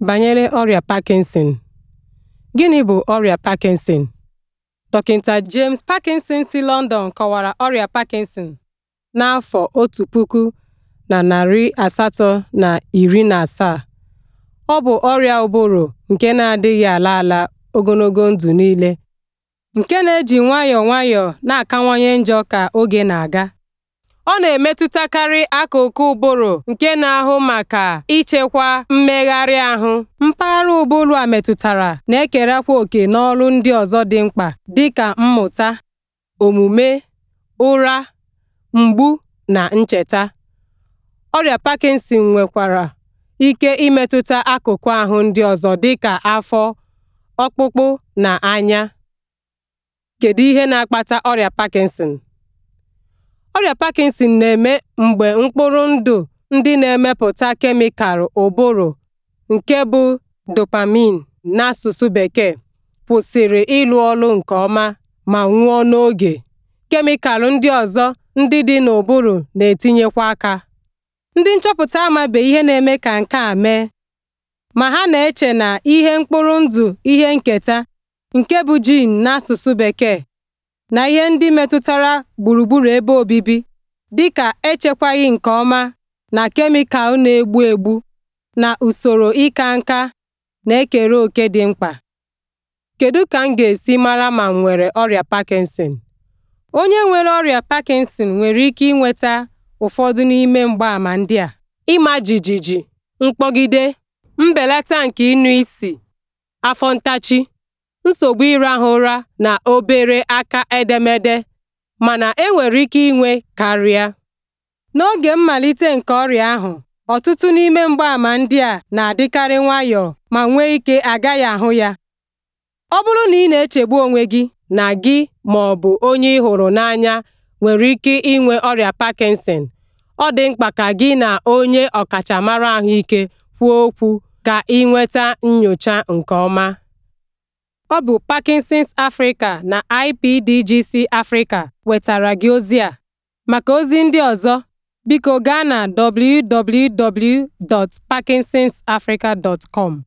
Banyere ọrịa Parkinson: Gịnị bụ ọrịa Parkinson? Dọkịta James Parkinson si London kọwara ọrịa Parkinson n'afọ otu puku na narị asatọ na na iri asaa. ọ bụ ọrịa ụbụrụ nke na-adịghị ala ala ogologo ndụ niile, nke na-eji nwayọọ nwayọọ na-akawanye njọ ka oge na-aga. ọ na-emetụtakarị akụkụ ụbụrụ nke na-ahụ maka ichekwa mmegharị ahụ mpaghara ụbụrụ a metụtara na-ekerakwa oke n'ọrụ ndị ọzọ dị mkpa dị ka mmụta omume ụra mgbu na ncheta ọrịa Parkinson nwekwara ike imetụta akụkụ ahụ ndị ọzọ dịka afọ ọkpụkpụ na anya kedu ihe na-akpata ọrịa Parkinson ọrịa parkinson na-eme mgbe mkpụrụ ndụ ndị na-emepụta kemịkalụ ụbụrụ nke bụ dopamine n'asụsụ bekee kwụsịrị ịlụ ọrụ nke ọma ma nwụọ n'oge. Kemịkalụ ndị ọzọ ndị dị n'ụbụrụ na-etinyekwa aka. Ndị nchọpụta amabe ihe na-eme ka nke a mee, ma ha na-eche na ihe mkpụrụ ndụ ihe nketa nke bụ gene n'asụsụ bekee na ihe ndị metụtara gburugburu ebe obibi dịka echekwaghị nke ọma na kemịkal na-egbu egbu na usoro ịka nka na-ekere òkè dị mkpa. Kedu ka m ga-esi mara ma m nwere ọrịa Parkinson? Onye nwere ọrịa Parkinson nwere ike inweta ụfọdụ n'ime mgbaàmà ndị a: ịma jijiji, mkpọgide, mbelata nke ịnụ isi, afọ ntachi. nsogbu ịrahụ ụra na obere aka edemede mana e nwere ike inwe karịa. N'oge mmalite nke ọrịa ahụ, ọtụtụ n'ime mgbaàmà ndị a na-adịkarị nwayọọ ma nwee ike agaghị ahụ ya. Ọ bụrụ na ị na-echegbu onwe gị na gị ma ọ bụ onye ị hụrụ n'anya nwere ike inwe ọrịa Parkinson, ọ dị mkpa ka gị na onye ọkachamara ahụike kwuo okwu ka ị nweta nyocha nke ọma. Ọ bụ Parkinson's Africa na IPDGC Africa wetara gị ozi a. Maka ozi ndị ọzọ, biko gaa na www.parkinsonsafrica.com.